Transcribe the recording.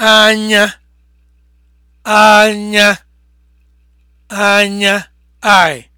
anya anya anya eye